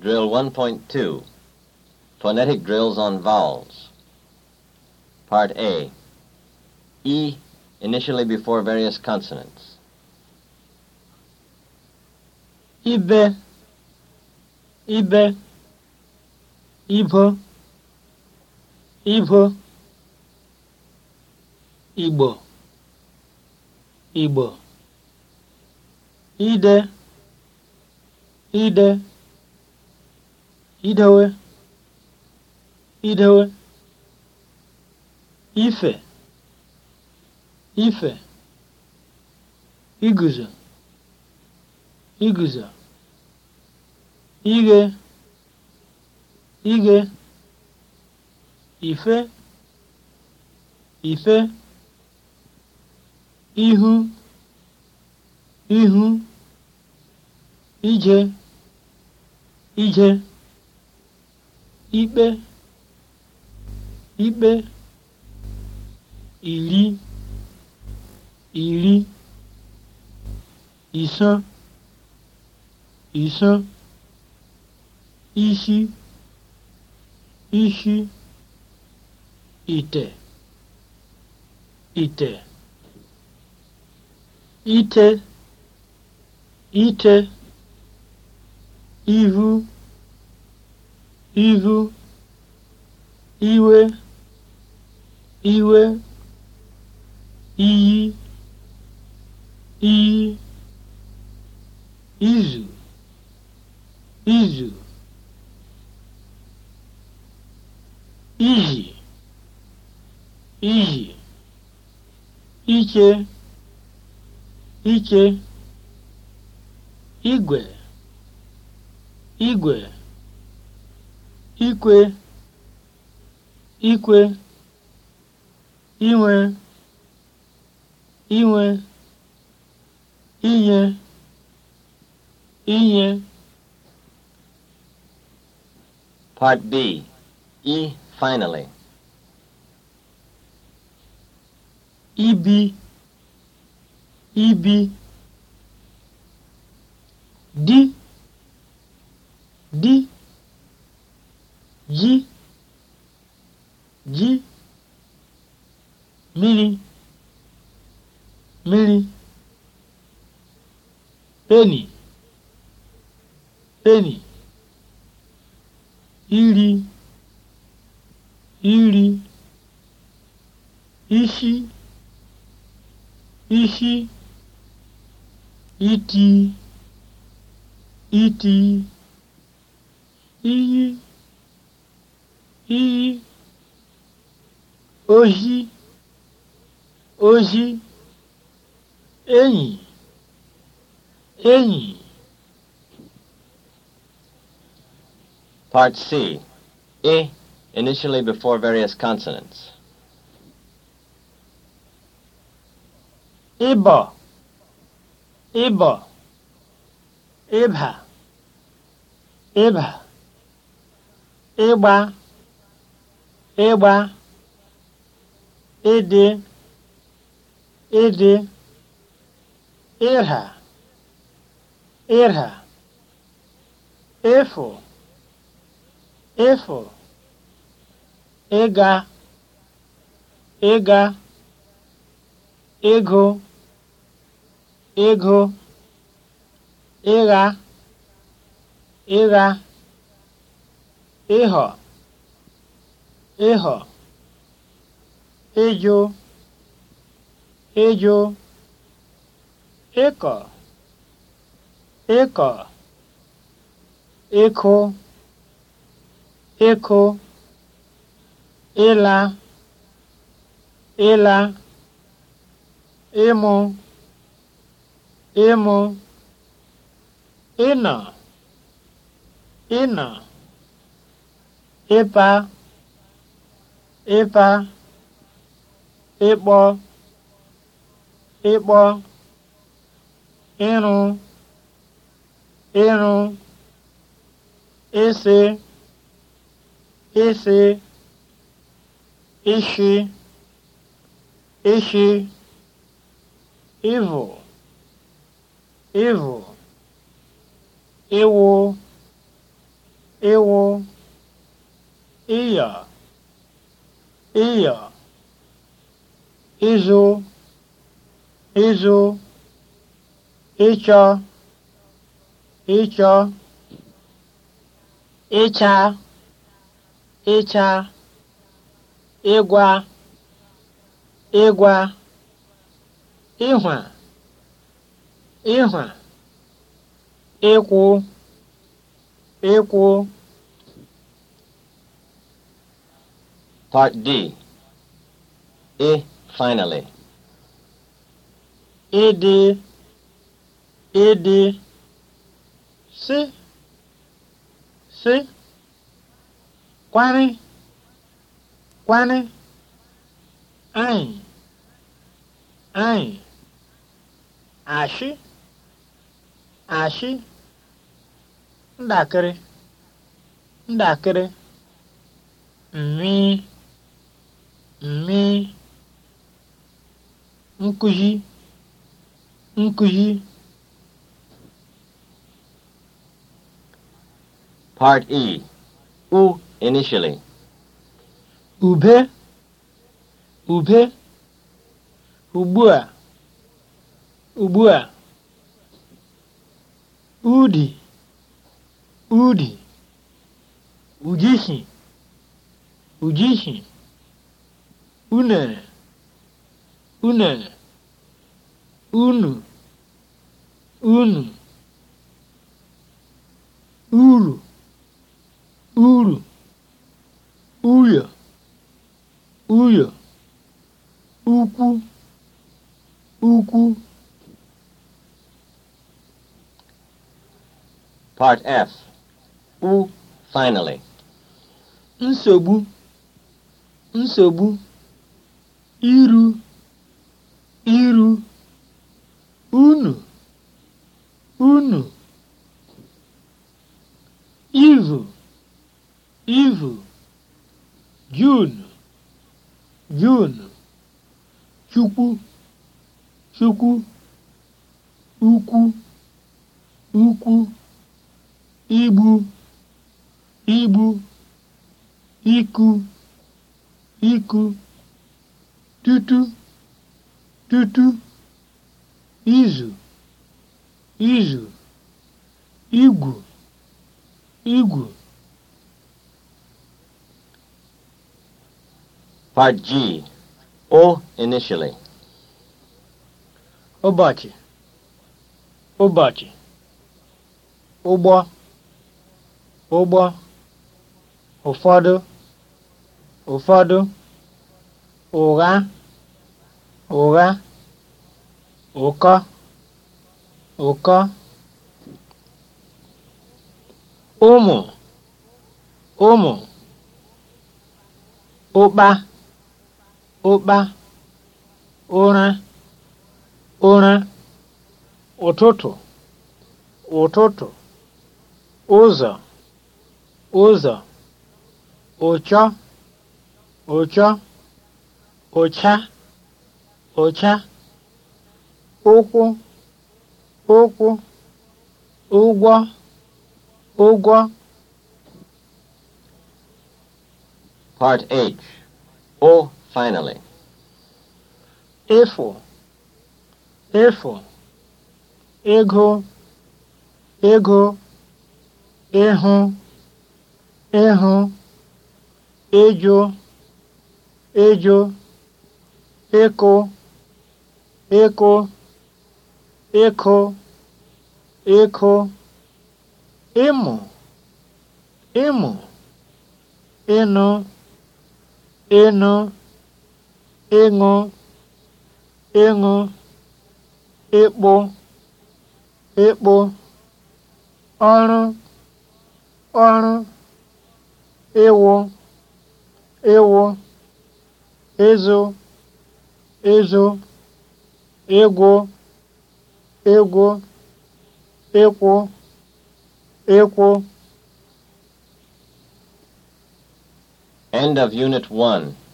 Drill 1.2 Phonetic Drills on Vowels Part A E initially before various consonants. Ibe Ibe Ibo Ibo Igbo Igbo Ide Ide idewe idewe ife ife iguzo iguzo ighe ighe ife ife ihu ihu ije ije ikpe ikpe iri iri ịsọ ịsọ isi isi ite ite ite ite ihu ihu iwe iwe iyi iyi izu izu iyi iyi iche iche igwe igwe ikwe ikwe inwe inwe inye inye Part B E finally ibi ibi di di mmiri mmiri peni peni iri iri ishi ishi iti iti iyi iyi ohi ozi enyi enyi Part C. E, initially before various consonants. Ibo, Ịbọ, Ịba, Ibha, Iba, Iba, Idi, Ịdị ịha ịha ịfụ ịfụ ịga ịga ego ego ịgha ịgha ịhọ ịghọ ịjụ ejo ịkọ ịkọ ịkụ ịkụ ịla ịla ịmụ ịmụ ịnọ ịnọ ịpa ịpa ịkpọ ịkpọ ịrụ ịrụ ịsị ịsị ishi ishi ịvụ ịvụ ịwụ ịwụ ịya ịya ịzụ ịzụ ịchọ ịchọ ịcha ịcha ịgwa ịgwa ịhwa ịhwa ịkwụ ịkwụ Part D. A. Finally. ịdị ịdị sị sị kwani, kwani, anyị anyị ashị ashị ndakịrị ndakịrị mmi mmi nkụzi nkuzi, part e "U" initially ube ube ugbu a udi udi ujishi ujishi unere unere unu unu uru uru uyo uyo ukwu ukwu Part F U finally nsogbu nsogbu iru iru unu unu ivu ivu jun junu chukwu chukwu ukwu ukwu igbu igbu iku iku tutu tutu izu izu igwu igwu Part O initially. Ụbọchị, ụbọchị, ụgbọ, ụgbọ, ụfọdụ, ụfọdụ, ụgha, ụgha, ụkọ. 올까? ụmụ ụmụ ụkpa ụkpa ụra ụra ụtụtụ ụtụtụ ụzọ ụzọ ụchọ ụchọ ụcha ụcha ụkwụ Okwu ụgwọ ụgwọ Part H. O finally. Efu, efu, ego, ego, ịhụ, ịhụ, ịjụ, ịjụ, ịkụ, ịkụ. ịkụ ịkụ ịmụ ịmụ ịnụ ịnụ ịṅụ ịṅụ ịkpụ ịkpụ ọrụ ọrụ ịwụ ịwụ ịzụ ịzụ ịgwụ ịgwụ ịkwụ ịkwụ End of Unit 1